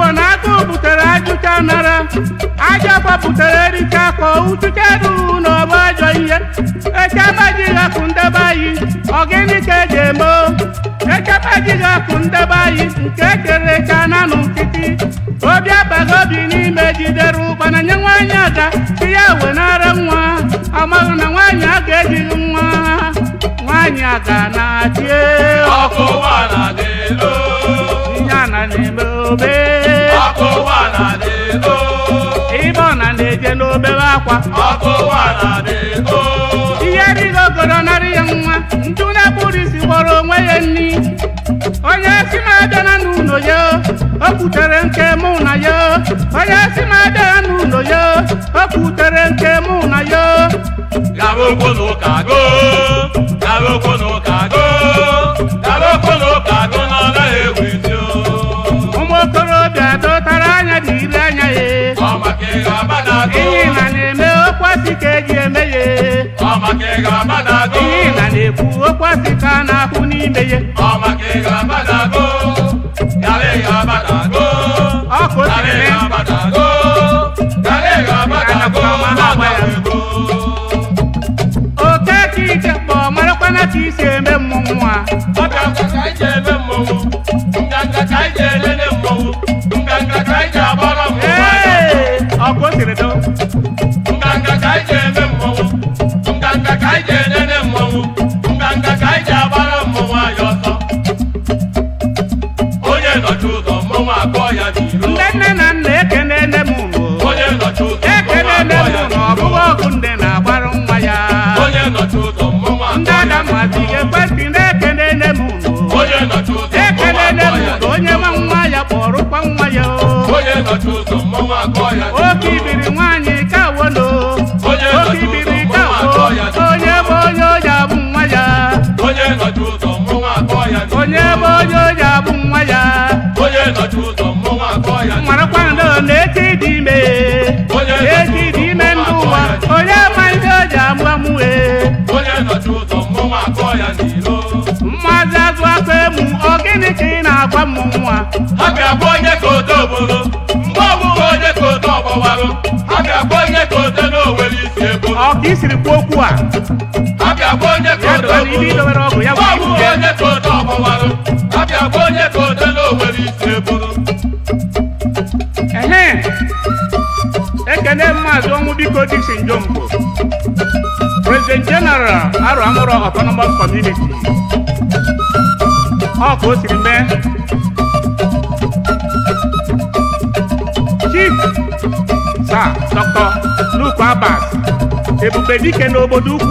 bụ na akụ butere ajụcha nara aja kwapụtara erika ka uchuche ruru na ọba ajọ ihe echebajighị akụ ndebe anyị ọgịnị ka eji eme echebajighị akụ ndebe anyị nke ekere echa na nkịtị obi abaghị obi n'ime jidere ụkpana nye nwaanyị aga ihe wenara nwa amaghị na nwaanyị a ga-ejighị nwa nwaanyị aga na-achị e. ọkụ ụgbọala dị elu na na obe ebe ọ na na-eje n'obere akwa ihe rigo goro narị ya nwa ndị na-ekpuru isi gbọrọ onwe ya nri onye si m abịa na n'ụlọ ya o kwutere nke mụ na ya onye si m abịa na n'ụlọ ya o kwutere nke mụ na ya gawa n'ụka madago ihe na na-eme okwasị ka eji eme ya ọ maka ị ga madago ihe na na-ekwu okwasị ka a na-akwụ n'ime ya ọ maka ị ga madago yara ị ga madago ọkụ yara ị ga madago yara ị ga madago mama ya oke ka ije kpọ marakwana ka isi eme mmụnwa nne na mara kwado na eti dị ime eti ime ndị ụwa onye amaghị o agba amụọ mụwe Mmaazị azụ akpa emu ọ gịnị ka ị na-agwa m nwa a ga onye ka onye ka ga onye na isi e okwu a ga onye ka odo bụrụ onye ka Dilemma zongu biko dixin jombo. President General aro amoro autonomous community. Oko sirimbe. Chief Sir Dr. Luke Abbas. Ebube dike n'obodo ukwu.